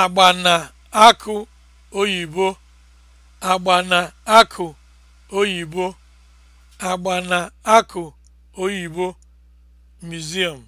agba na akụ oyibo agba na akụ oyibo agba na akụ oyibo museum